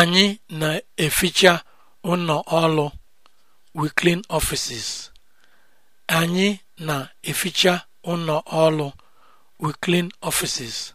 anyị na-eficha ụlọ ọrụ we clean anyị na-eficha ụlọ ọrụ we clean